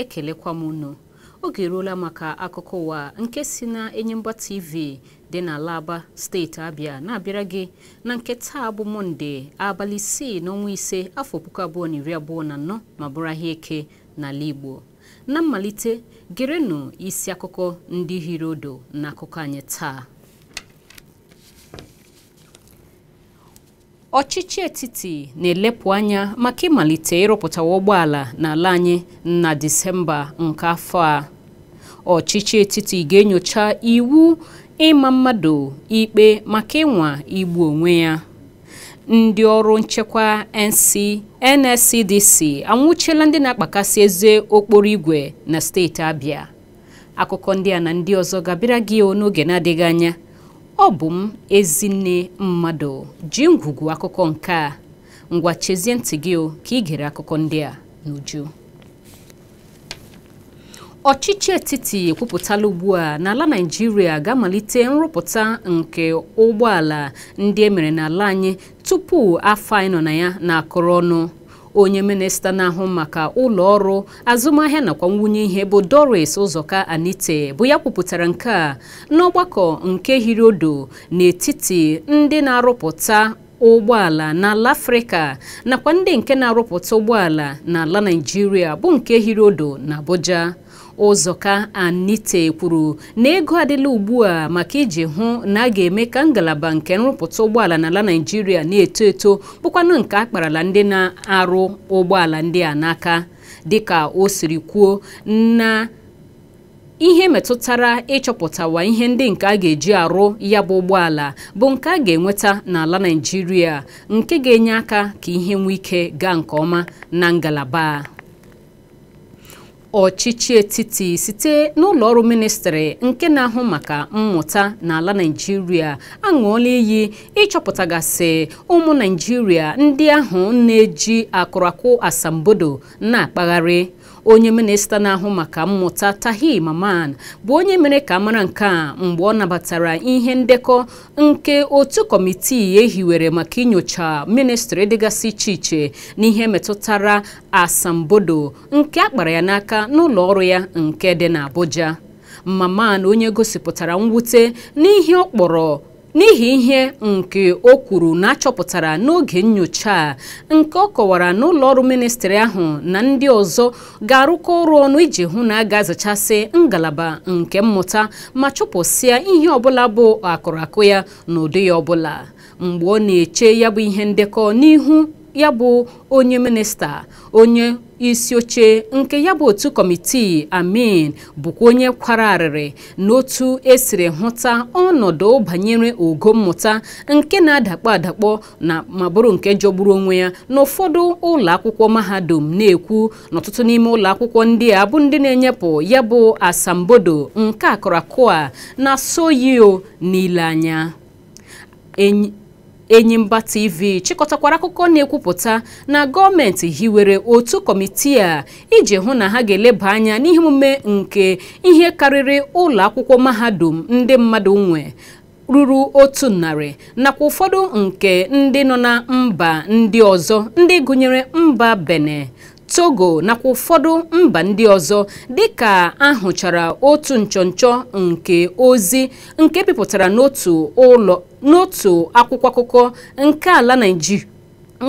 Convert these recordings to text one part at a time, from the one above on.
ekelekwa m unu oge eruola maka akụkọ ụwa nke si na Enyimba TV dị n'ala Aba steeti Abịa na-abịara gị na nke taa bụ mọnde abalị isii n'ọnwa ise afọ puku abụọ na iri abụọ na anọ ma bụrụ ahịa eke n'ala Igbo na mmalite gerenụ isi akụkọ ndị hiri odo na akụkọ anyị taa ọchịchị etiti na-elepụ anya maka ịmalite ịrụpụtawa ụgbọala n'ala anyị na Disemba nke afọ a ọchịchị etiti ga-enyocha iwu ịma mmadụ ikpe maka ịnwa igbu onwe ya ndị ọrụ nchekwa NC NSCDC anwụchiela ndị na-akpakasị eze okporo igwe na steeti Abịa akụkọ ndị a na ndị ọzọ gabịara gị n'oge na-adịghị anya ọ bụ m ezinne mmadụ ji ngwugwu akụkọ nke a ngwa chezie ntị gị ka ị gere akụkọ ndị a n'uju ọchịchị etiti ekwupụtala ugbu a n'ala Naịjirịa ga-amalite nrụpụta nke ụgbọala ndị e mere n'ala anyị tupu afọ anyị nọ na ya na-akụrụ ọnụ onye minista na-ahụ maka ụlọ ọrụ azụmahịa nakwa nwunye ihe bụ Doris Ụzọka Anite bụ ya kwupụtara nke a n'ọgbakọ nke hiri odo n'etiti ndị na-arụpụta ụgbọala n'ala afrịka nakwa ndị nke na-arụpụta ụgbọala n'ala naijiria bụ nke hiri odo na abuja Ụzọka Anite kwuru na ego adịla ugbu a maka iji hụ na a ga-eme ka ngalaba nke nrụpụta ụgbọala n'ala Naịjirịa na-eto eto bụkwanụ nke a kparala ndị na-arụ ụgbọala ndị a n'aka dịka o siri kwuo na ihe metụtara ịchọpụtawa ihe ndị nke a ga-eji arụ ya bụ ụgbọala bụ nke a ga-enweta n'ala Naịjirịa nke ga-enye aka ka ihe nwee ike gaa nke ọma na ngalaba ọchịchị etiti site n'ụlọọrụ ministri nke na-ahụ maka mmụta n'ala naijiria aṅụọla iyi ịchọpụtagasị ụmụ naijiria ndị ahụ na-eji akụrakụ asambodo na-akpagharị onye minista na-ahụ maka mmụta tahi maman bụ onye mere ka mara nke a mgbe ọ nabatara ihe ndekọ nke otu kọmitii ehiwere maka inyocha ministri dịgasị iche iche n'ihe metụtara asambodo nke akpara ya n'aka n'ụlọ ọrụ ya nke dị n'Abuja maman onye gosipụtara mwute n'ihe ọ kpọrọ n'ihi ihe nke o kwuru na achọpụtara n'oge nyocha a nke ọ kọwara na ụlọọrụ ministri ahụ na ndị ọzọ ga-arụkọ ọrụ ọnụ iji hụ na a ga-azachasị ngalaba nke mmụta ma chụpụsịa ihe ọbụla bụ akụrụakụ ya ụdị ya ọbụla mgbe ọ na-eche ya bụ ihe ndekọ n'ihu ya bụ onye minista onye isi oche nke ya bụ otu kọmitii amin bụkwa onye kwara arịrị n'otu esiri hụta ọnọdụ banyere ogo mmụta nke na-adakpọ adakpọ na ma bụrụ nke jọgburu onwe ya n'ụfọdụ ụlọ akwụkwọ mahadum na-ekwu n'ọtụtụ n'ime ụlọ akwụkwọ ndị a bụ ndị na-enyepụ ya bụ asambodo nke akụrakụ a na soyio n'ile anya Enyimba TV chịkọtakwara akụkọ na-ekwupụta na gọọmenti hiwere otu kọmitii a iji hụ na ha ga-eleba anya n'ihe nke ihe karịrị ụlọ akwụkwọ mahadum ndị mmadụ nwe ruru otu narị nakwa ụfọdụ nke ndị nọ na mba ndị ọzọ ndị gụnyere mba bene. Togo nakwa ụfọdụ mba ndị ọzọ dịka ahụchara otu nchọnchọ nke ozi nke bipụtara n'otu ụlọ akwụkwọ akụkọ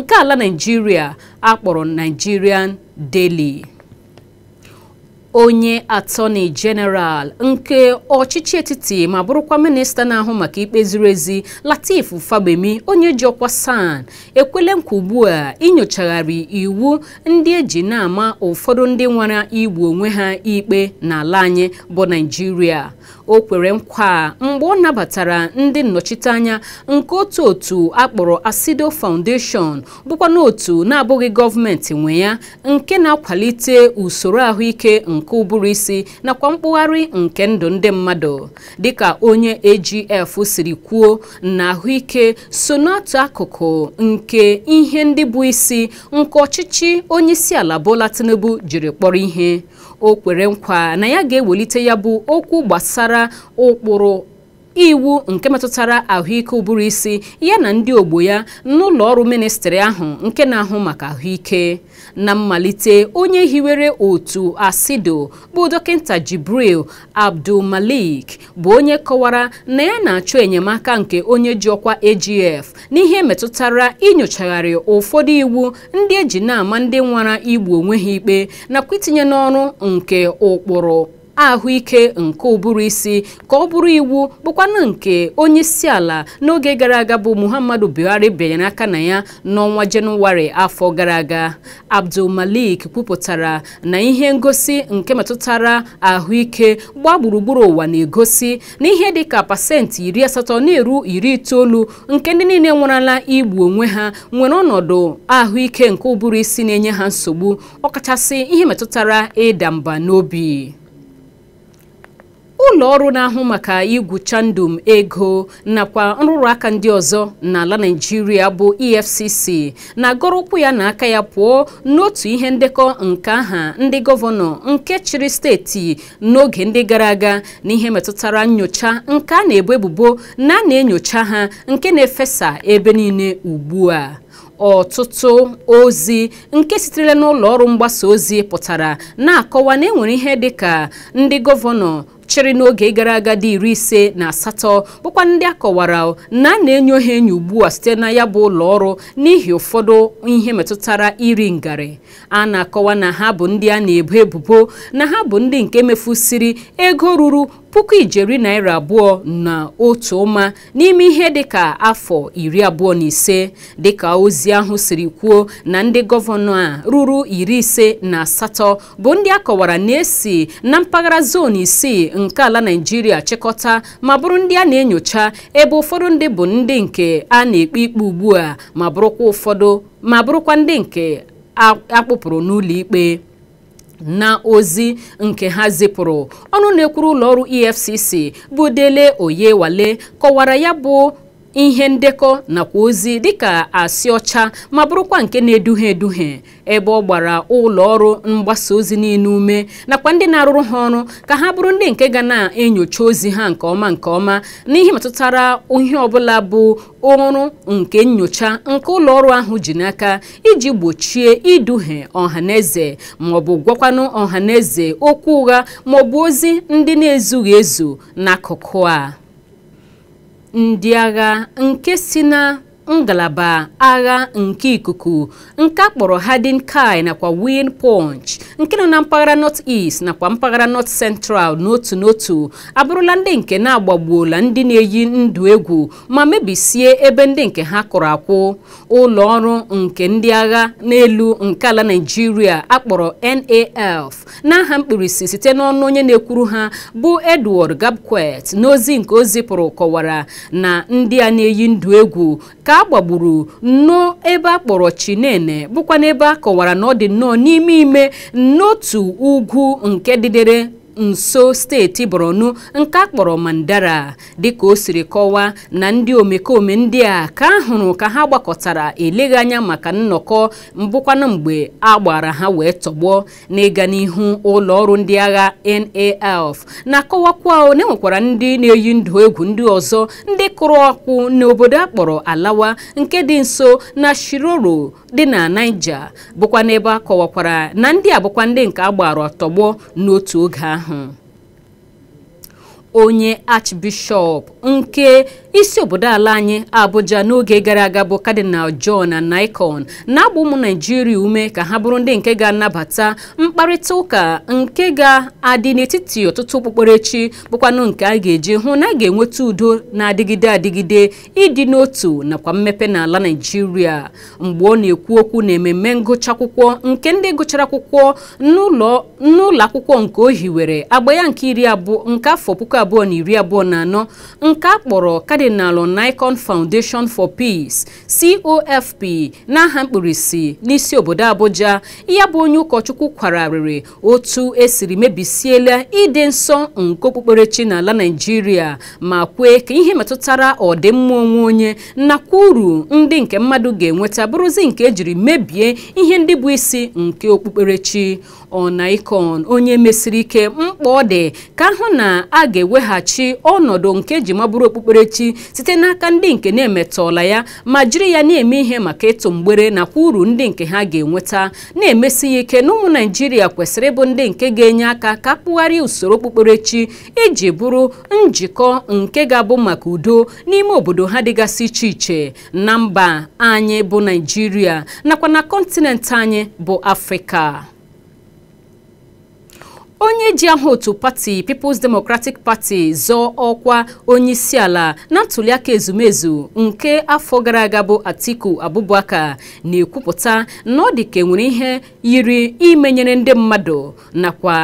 nke ala Naịjirịa akpọrọ Nigerian Daily onye atọni jeneral nke ọchịchị etiti ma bụrụkwa minista na-ahụ maka ikpe ziri ezi latif fagbemi onye ji ọkwa san ekwele nkwa ugbu a inyochagharị iwu ndị eji na-ama ụfọdụ ndị nwara igbu onwe ha ikpe n'ala anyị bụ naijiria o kwere nkwa mgbe ọ nabatara ndị nnọchiteanya nke otu otu akpọrọ Asido Foundation bụkwa n'otu na-abụghị gọọmenti nwe ya nke na-akwalite usoro ahụike nke ụbụrụ isi nakwa mkpụgharị nke ndụ ndị mmadụ dịka onye AGF siri kwuo na ahụike so n'otu akụkụ nke ihe ndị bụ isi nke ọchịchị onyeisiala bụla Tinubu jiri kpọrọ ihe o kwere nkwa na ya ga-ewelite ya bụ okwu gbasara ụkpụrụ iwu nke metụtara ahụike ụbụrụ isi ya na ndị ogbo ya n'ụlọ ọrụ ministri ahụ nke na-ahụ maka ahụike na mmalite onye hiwere otu asido bụ dọkịta jibril abdulmalik bụ onye kọwara na ya na-achọ enyemaka nke onye ji ọkwa agf n'ihe metụtara inyochagharị ụfọdụ iwu ndị eji na-ama ndị nwara igbu onwe ha ikpe nakwa itinye n'ọrụ nke ụkpụrụ ahụike nke ụbụrụ isi ka ọ bụrụ iwu bụkwanụ nke onye isi ala n'oge gara aga bụ Muhammadu Buhari bịanyere aka na ya n'ọnwa Jenụwarị afọ gara aga Abdul Malik kwupụtara na ihe ngosi nke metụtara ahụike gbaa gburugburu ụwa na-egosi na ihe dịka pasentị iri asatọ na-eru iri itoolu nke ndị niile nwerala igbu onwe ha nwere ọnọdụ ahụike nke ụbụrụ isi na-enye ha nsogbu ọkachasị ihe metụtara ịda mba n'obi ụlọ ọrụ na-ahụ maka igwucha ndụ ego nakwa nrụrụ aka ndị ọzọ n'ala Naịjirịa bụ EFCC na-agọrọ ụkwụ ya na aka ya pụọ n'otu ihe ndekọ nke aha ndị gọvanọ nke chịrị steeti n'oge ndị gara aga n'ihe metụtara nyocha nke a na-ebu ebubo na na-enyocha ha nke na-efesa ebe niile ugbu a ọtụtụ ozi nke sitere n'ụlọ ọrụ mgbasa ozi pụtara na-akọwa na enwere ihe dịka ndị gọvanọ chịrị n'oge gara aga dị iri ise na asatọ bụkwa ndị akọwara na a na enye ha enyo ugbu a site na ya bụ ụlọ ọrụ n'ihi ụfọdụ ihe metụtara iri ngarị a na-akọwa na ha bụ ndị a na-ebo ebubo na ha bụ ndị nke mefusiri ego ruru puku ijeri naira abụọ na otu ụma n'ime ihe dịka afọ iri abụọ na ise dịka ozi ahụ siri kwuo na ndị gọvanọ a ruru iri ise na asatọ bụ ndị a kọwara na-esi na mpaghara zon isii nke ala Naịjirịa chịkọta ma bụrụ ndị a na-enyocha ebe ụfọdụ ndị bụ ndị nke a na-ekpe ikpe ugbu a ma bụrụkwa ụfọdụ ma bụrụkwa ndị nke akpụpụrụ n'ụlọ ikpe na ozi nke ha zipụrụ ọnụ na-ekwuru ụlọọrụ EFCC bụ Dele wale kọwara ya bụ ihe ndekọ nakwa ozi dịka asị ọcha ma bụrụkwa nke na-eduhie eduhie ebe ọ gbara ụlọ ọrụ mgbasa ozi niile ume nakwa ndị na-arụrụ ha ọrụ ka ha bụrụ ndị nke ga na-enyocha ozi ha nke ọma nke ọma n'ihe metụtara ihe ọbụla bụ ọrụ nke nyocha nke ụlọ ọrụ ahụ ji n'aka iji gbochie iduhie ọhaneze maọbụ gwakwanụ eze okwu ụgha maọbụ ozi ndị na-ezughị ezu n'akụkụ a ndị agha nke si na ngalaba agha nke ikuku nke akpọrọ Hardin Kai nakwa Win Punch nke nọ na mpaghara North East nakwa mpaghara North Central n'otu n'otu abụrụla ndị nke na-agbagbuola ndị na-eyi ndụ egwu ma mebisie ebe ndị nke ha kụrụ akwụ ụlọ ọrụ nke ndị agha n'elu nke ala Nigeria akpọrọ NAF n'aha mkpirisi site n'ọnụ onye na-ekwuru ha bụ Edward Gabkwet n'ozi nke o zipụrụ kọwara na ndị a na-eyi ndụ egwu ka a gbagburu nnọọ ebe a kpọrọ chinene bụkwa n'ebe a kọwara na ọ dị nnọọ n'ime ime n'otu ugwu nke didere. nso steeti borno nke a kpọrọ mandara dịka o siri kọwaa na ndị omekome ndị a ka a hụrụ ka ha gbakọtara eleghị anya maka nnọkọ mbụkwana mgbe a gbara ha wee tọgbọ n'ịga n'ihu ụlọ ọrụ ndị agha NALF na-akọwakwa na enwekwara ndị na-eyi ndụ egwu ndị ọzọ ndị kụrụ ọkụ n'obodo a kpọrọ alawa nke dị nso na shiroro dị na Naija bụkwa n'ebe a kọwakwara na ndị a bụkwa ndị nke a gbara tọgbọ n'otu oge ahụ huh. Mm-hmm. onye archbishọp nke isi obodo ala anyị Abuja n'oge gara aga bụ kadinal John Anaikon na-agba ụmụ Naijiria ume ka ha bụrụ ndị nke ga-anabata mkparịta ụka nke ga-adị n'etiti ọtụtụ okpukperechi bụkwanụ nke a ga-eji hụ na a ga-enweta udo na-adịgide adịgide ịdị n'otu nakwa mmepe n'ala Naijiria mgbe ọ na-ekwu okwu na ememme ngụcha akwụkwọ nke ndị gụchara akwụkwọ n'ụlọ akwụkwọ nke ohiwere agba ya nke iri abụọ nke afọ puku abụọ na iri abụọ na anọ nke a kpọrọ Cardinal Nicon Foundation for Peace COFP n'aha mkpirisi n'isi obodo Abuja ya bụ onye ụkọchukwu kwararịrị otu esiri mebisiela ịdị nsọ nke okpukperechi n'ala naijiria ma kwee ka ihe metụtara ọdịmma onwe onye nakwa uru ndị nke mmadụ ga-enweta bụrụzi nke ejiri mebie ihe ndị bụ isi nke okpukperechi ọna ikon onye mesiri ike mkpa ọ dị ka ahụ na a ga-eweghachi ọnọdụ nke ji mabụrụ okpukperechi site n'aka ndị nke na-emetọla ya ma jiri ya na-eme ihe maka ịtụ mgbere nakwa uru ndị nke ha ga-enweta na-emesi ya ike na ụmụ naijiria kwesịrị ịbụ ndị nke ga-enye aka ka kpụgharịa usoro okpukperechi iji bụrụ njikọ nke ga-abụ maka udo n'ime obodo ha dịgasị iche iche na mba anyị bụ naijiria nakwa na kọntinent anyị bụ afrịka onye ji aha otu pati People's Democratic Party zọọ ọkwa onye ala na ntuliaka ezumezu nke afọ gara aga bụ Atiku Abubakar na-ekwupụta na ọ dị ka enwere ihe yiri imenyere ndị mmadụ nakwa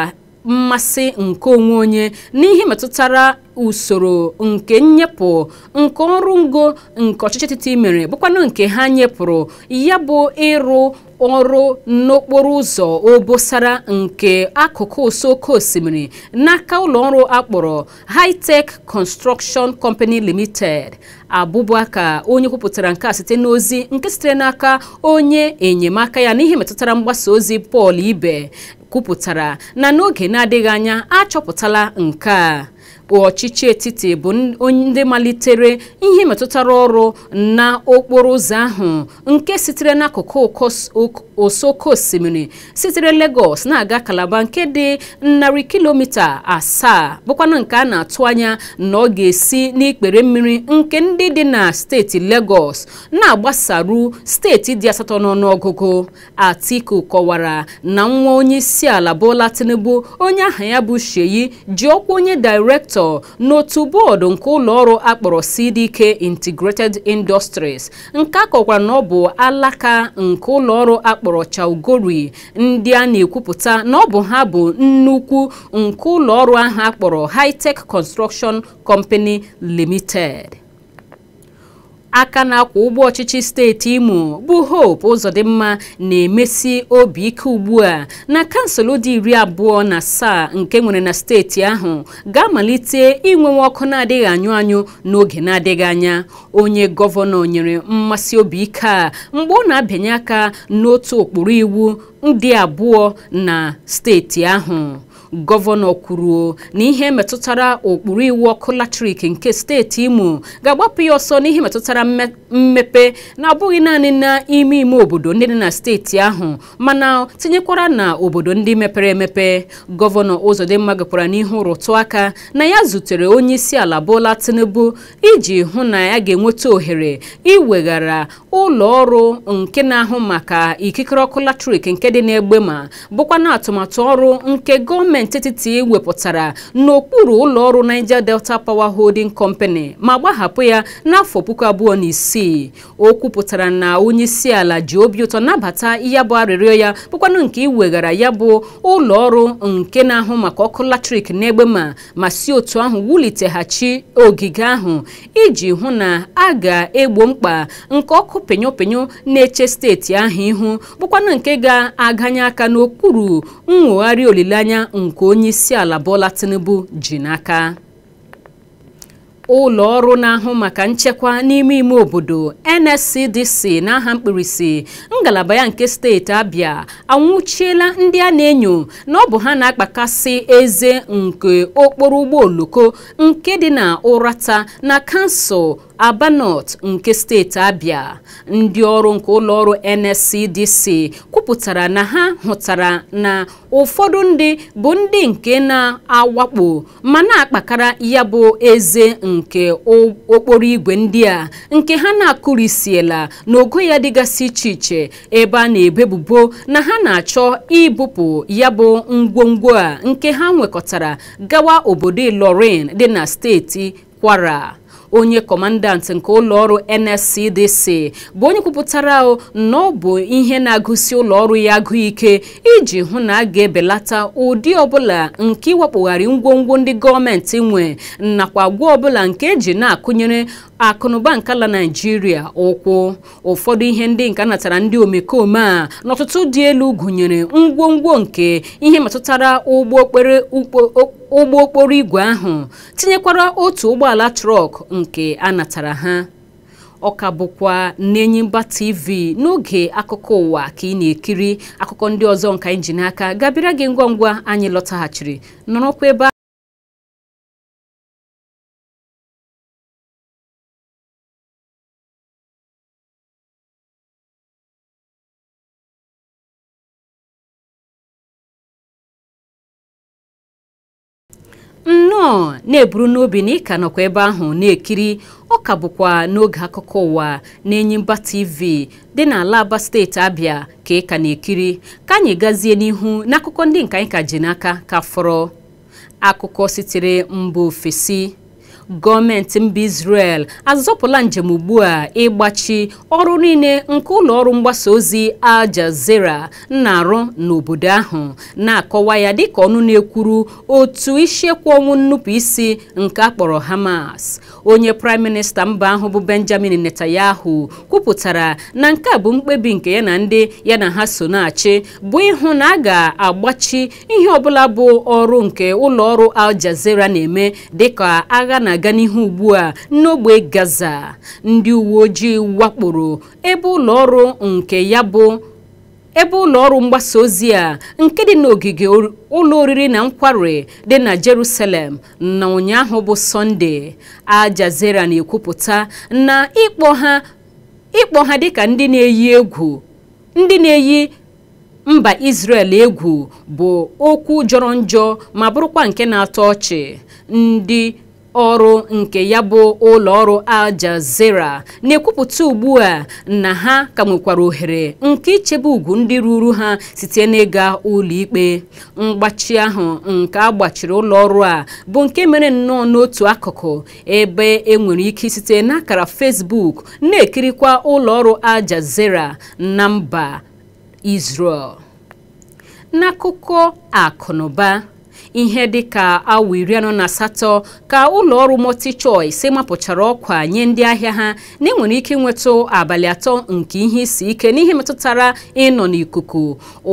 mmasị nke onwe onye n'ihe metụtara usoro nke nnyepụ nke ọrụ ngo nke ọchịchị etiti mere bụkwanụ nke ha nyepụrụ ya bụ ịrụ ọrụ n'okporo ụzọ obosara nke akụkụ ụsọ osimiri n'aka ọrụ akpọrọ Hightech Construction Company Limited Abubakar onye kwupụtara nke a site n'ozi nke sitere n'aka onye enyemaka ya n'ihe metụtara mgbasa ozi Paul Ibe kwupụtara na n'oge na-adịghị anya achọpụtala nke a ọchịchị etiti bụ ndị malitere ihe metụtara ọrụ na okporo ụzọ ahụ nke sitere n'akụkụ osoko osimiri sitere Lagos na-aga Calabar nke dị narị kilomita asaa bụkwanụ nke a na-atụ anya na ọ ga-esi n'ikpere mmiri nke ndị dị na steeti legos na-agbasaru steeti dị asatọ n'ọnụọgụgụ Atiku kọwara na nwa onye isi ala bụla Tinubu onye aha ya bụ Sheyi ji ọkwa onye direktọ Victor n'otu bọọdụ nke ụlọọrụ akpọrọ CDK Integrated Industries nke akọkwara na ọ bụ alaka nke ụlọọrụ akpọrọ Chaugori ndị a na-ekwupụta na ọ bụ ha bụ nnukwu nke ụlọọrụ ahụ akpọrọ High Tech Construction Company Limited. aka na-akwa ụgbọ ọchịchị steeti imo bụ hope ụzọdịmma na-emesi obi ike ugbu a na kansụl dị iri abụọ na asaa nke nwere na steeti ahụ ga-amalite inwenwe ọkụ na-adịghị anyụ anyụ n'oge na-adịghị anya onye gọvanọ nyere mmasị obi ike a mgbe ọ na-abịanye aka n'otu ụkpụrụ iwu ndị abụọ na steeti ahụ gọvanọ kwuru na ihe metụtara ụkpụrụ iwu ọkụ latrik nke steeti imo ga-agbapụ ya ọsọ n'ihe metụtara mmepe na-abụghị naanị n'ime ime obodo ndị dị na steeti ahụ mana tinyekwara na obodo ndị mepere emepe gọvanọ ụzọdịmma gakwara n'ihu rụtụ aka na ya zutere onye isi ala bola tinubu iji hụ na ya ga-enweta ohere iweghara ụlọ ọrụ nke na-ahụ maka ikikere ọkụ latrik nke dị n'egbe ma bụkwa na atụmatụ ọrụ nke gọọmenti gọọmenti etiti wepụtara n'okpuru ụlọ ọrụ Niger Delta Power Holding Company ma gbahapụ ya n'afọ puku abụọ na isii o kwupụtara na onye isi ala ji obi ụtọ nabata ya bụ arịrịọ ya bụkwanụ nke iweghara ya bụ ụlọ ọrụ nke na-ahụ maka ọkụ latrik n'egbe ma ma si otu ahụ wuliteghachi ogige ahụ iji hụ na a ga-egbo mkpa nke ọkụ penyopenyo na-eche steeti ahụ ihu bụkwanụ nke ga-aganye aka n'okpuru nwogharị olileanya nke onye isi ala Bola Tinubu ji n'aka ụlọ ọrụ na-ahụ maka nchekwa n'ime ime obodo NSCDC n'aha mkpirisi ngalaba ya nke steeti abịa anwụchiela ndị a na-enyo na ọ bụ ha na-akpakasị eze nke okporo ụgbọ oloko nke dị na Ụrata na kansụl Aba nke steeti Abia ndị ọrụ nke ụlọọrụ NSCDC kwupụtara na ha hụtara na ụfọdụ ndị bụ ndị nke na-awakpo ma na-akpakara ya bụ eze nke okporo igwe ndị a nke ha na-akụrisiela n'ogo ya dịgasị iche iche ebe a na-ebebubo na ha na-achọ ibupụ ya bụ ngwongwo a nke ha nwekọtara gawa obodo Ilorin dị na steeti Kwara onye kọmandant nke ụlọọrụ NSCDC bụ onye kwupụtara na ọ bụ ihe na-agụsi ụlọọrụ ya agụ ike iji hụ na a ga-ebelata ụdị ọbụla nke iwepụgharị ngwongwo ndị gọọmenti nwe nakwa gwa ọbụla nke eji na-akụnyere akụnụba nke ala naijiria ụkwụ ụfọdụ ihe ndị nke natara ndị omekome a n'ọtụtụ dị elu gụnyere ngwongwo nke ihe metụtara ụgbọ okpere ụgbọ okporo igwe ahụ tinyekwara otu ụgbọala trọk nke a natara ha ọ ka bụkwa mba TV n'oge akụkọ ụwa ka ị na-ekiri akụkọ ndị ọzọ nka anyị ji n'aka gabịara gị ngwa ngwa anyị lọtaghachiri nọrọkwa ebe nọ na-eburu n'obi na ịka nọkwa ebe ahụ na-ekiri ọ ka bụkwa n'oge akụkọ ụwa na-enyimba tv dị n'ala aba steeti abịa ka ị ka na-ekiri ka anyị gazie n'ihu n'akụkọ ndị nka anyị ka ji n'aka ka fọrọ akụkọ sitere mba ofesi gọọmenti mba Israel azọpụla njem ugbu a ịgbachi ọrụ niile nke ụlọ ọrụ mgbasa ozi Al Jazeera na-arụ n'obodo ahụ na-akọwa ya dịka ọnụ na-ekwuru otu isiekwu ọnwụ nnupụisi nke akpọrọ Hamas onye praịm minista mba ahụ bụ Benjamin Netanyahu kwupụtara na nke a bụ mkpebi nke ya na ndị ya na ha so na-achị bụ ịhụ na a ga-agbachi ihe ọbụla bụ ọrụ nke ụlọ ọrụ Al Jazeera na-eme dịka agha na na-aga n'ihu ugbu a n'ogbe Gaza ndị uwe ojii wakporo ebe ụlọ ọrụ nke ya bụ ebe ụlọ ọrụ mgbasa ozi a nke dị n'ogige ụlọ oriri na nkwari dị na Jerusalem na ụnyaahụ bụ Sọnde a na-ekwupụta na ịkpọ ha ịkpọ ha dịka ndị na-eyi mba Israel egwu bụ okwu jọrọ njọ ma bụrụkwa nke na-atọ ọchị ndị ọrụ nke ya bụ ụlọ ọrụ Jazeera na-ekwupụta ugbu a na ha ka nwekwara ohere nke ichebe ugwu ndị ruru ha site n'ịga ụlọikpe mgbachi ahụ nke a gbachiri ọrụ a bụ nke mere nnọọ n'otu akụkụ ebe enwere ike site n'akara Facebook na-ekirikwa ụlọ ọrụ Jazeera na mba Israel n'akụkọ akụnụba ihe dịka awa iri anọ na asatọ ka ụlọ mọti multi-choice mapụchara ọkwa nye ndị ahịa ha na enwere ike ịnwetụ abalị atọ nke ihe isi ike n'ihe metụtara ịnọ n'ikuku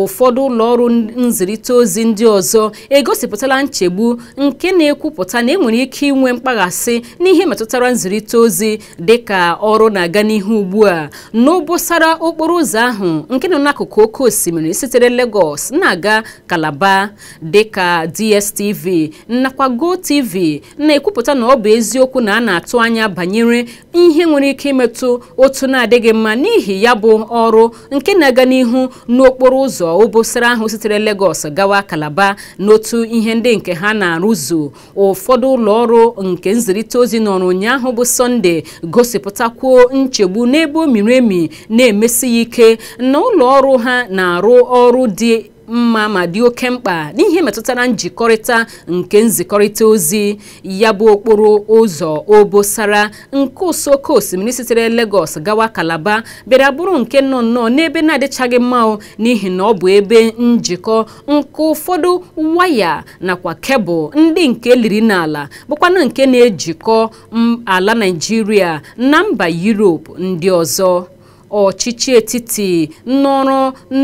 ụfọdụ ụlọ ọrụ nzirịta ozi ndị ọzọ egosipụtala nchegbu nke na-ekwupụta na enwere ike inwe mkpaghasị n'ihe metụtara nzirịta ozi dịka ọrụ na-aga n'ihu ugbu a n'obosara okporo ụzọ ahụ nke nọ n'akụkụ oke osimiri sitere Lagos na-aga Kalaba dịka di DSTV nakwa GoTV na-ekwupụta na ọ bụ eziokwu na a na-atụ anya banyere ihe nwere ike imetụ otu na-adịghị mma n'ihi ya bụ ọrụ nke na-aga n'ihu n'okporo ụzọ obosara ahụ sitere Lagos gawa Kalaba n'otu ihe ndị nke ha na-arụzu ụfọdụ ụlọ ọrụ nke nzirịta ozi ọrụ ụnyaahụ bụ Sọnde gosipụtakwuo nchegbu n'ebe o miri emi na-emesi ike na ụlọ ọrụ ha na-arụ ọrụ dị mma ma dị oke mkpa n'ihe metụtara njikọrịta nke nzikọrịta ozi ya bụ okporo ụzọ obosara nke usoko osimiri sitere Lagos gawa Kalaba bịara bụrụ nke nọ nnọọ n'ebe na-adịchaghị mma n'ihi na ọ bụ ebe njikọ nke ụfọdụ waya nakwa kebụl ndị nke liri n'ala bụkwana nke na-ejikọ ala naijiria na mba yurop ndị ọzọ ọchịchị etiti n'ọrụ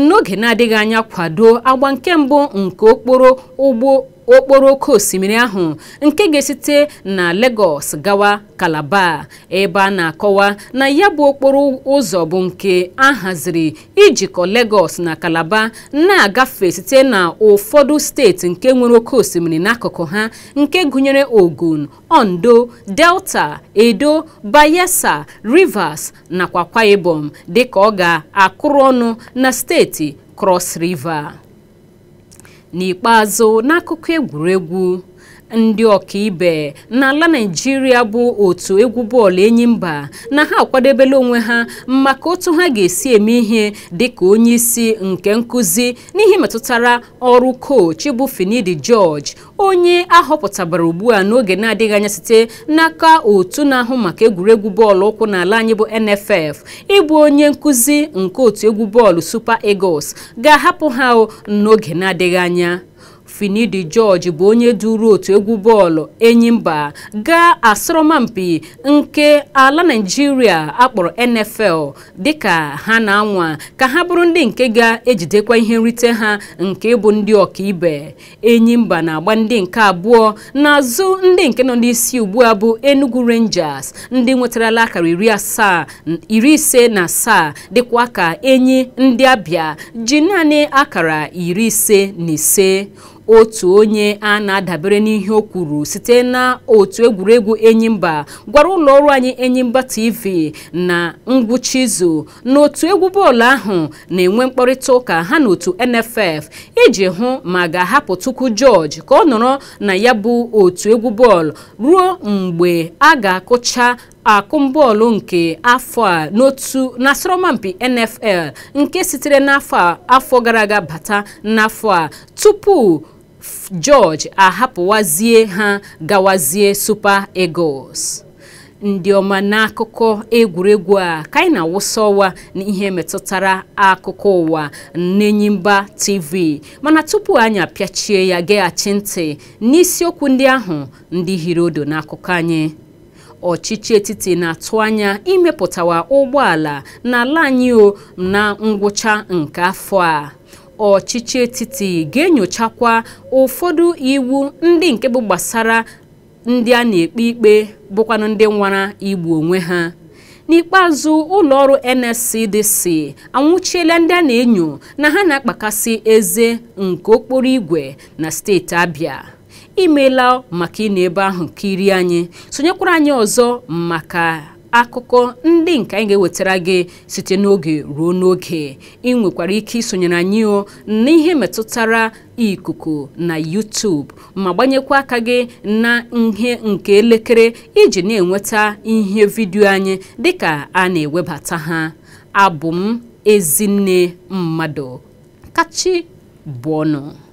n'oge na-adịghị anya kwado agba nke mbụ nke okporo ụgbọ okporo oke osimiri ahụ nke ga-esite na Lagos gawa Calabar ebe a na-akọwa na ya bụ okporo ụzọ bụ nke a haziri ijikọ Lagos na Calabar na-agafe site na ụfọdụ steeti nke nwere oke osimiri n'akụkụ ha nke gụnyere Ogun, Ondo, Delta, Edo, Bayelsa, Rivers nakwa kwaibom Ibom ka ọ ga-akụrụ ọnụ na steeti Cross River n'ikpeazụ n'akụkọ egwuregwu ndị ọkaibe n'ala naijiria bụ otu egwu bọọlụ enyi mba na ha akwadebela onwe ha maka otu ha ga-esi eme ihe dịka onye isi nke nkụzi n'ihe metụtara ọrụ koch bụ finidi george onye ahọpụtabara ugbu a n'oge na-adịghị anya site n'aka otu na-ahụ maka egwuregwu bọọlụ ụkwụ n'ala anyị bụ nff ịbụ onye nkụzi nke otu egwu bọọlụ super eagles ga-ahapụ ha n'oge na-adịghị anya finidi george bụ onye duru otu egwu bọọlụ enyimba gaa asọrọmpi nke ala naijiria akpọrọ nfl dịka ha na-anwa ka ha bụrụ ndị nke ga-ejidekwa ihe nrite ha nke bụ ndị ọkaibe enyimba na-agba ndị nke abụọ n'azụ ndị nke nọ n'isi ugbu a bụ enugu rangers ndị nwetarala akara iri asaa iri ise na asaa dịkwa ka enyi ndị abịa ji naanị akara iri ise na ise otu onye a na-adabere n'ihe o kwuru site na otu egwuregwu enyimba gwara ụlọ ọrụ anyị enyimba tv na ngwụcha izu n'otu egwu bọọlụ ahụ na-enwe mkparịta ụka ha na otu nff iji hụ ma ga-ahapụ tukwu george ka ọ nọrọ na ya bụ otu egwu bọọlụ ruo mgbe a ga-akụcha akụmbọọlụ nke afọ a n'otu n'asọrọmpi nfl nke sitere n'afọ gara aga bata n'afọ a tupu George ahapụwazie ha gawazie Super Eagles ndị ọma n'akụkọ egwuregwu a ka anyị na-awụsa ọwa n'ihe metụtara akụkọ ụwa n'Enyimba TV mana tupu anyị apịachie ya geghachi ntị n'isiokwu ndị ahụ ndị hiri odo n'akụkọ anyị ọchịchị etiti na-atụ anya imepụtawa ụgbọala n'ala anyị na ngwụcha nke afọ a ọchịchị etiti ga-enyochakwa ụfọdụ iwu ndị nke bụ gbasara ndị a na-ekpe ikpe bụkwanụ ndị nwara igbu onwe ha n'ikpeazụ ụlọ ọrụ NSCDC anwụchiela ndị a na-enyo na ha na-akpakasị eze nke okporo ígwè na steeti Abịa imeela maka ị na ebe ahụ kirie anyị sonyekwara anyị ọzọ maka akụkọ ndị nke anyị ga-ewetara gị site n'oge ruo n'oge ị nwekwara ike isonyere anyị o n'ihe metụtara ikuku na YouTube ma gbanyekwa aka gị na ihe nke elekere iji na-enweta ihe vidiyo anyị dịka a na-ewebata ha abụ m ezinne mmadụ kachi bụọnụ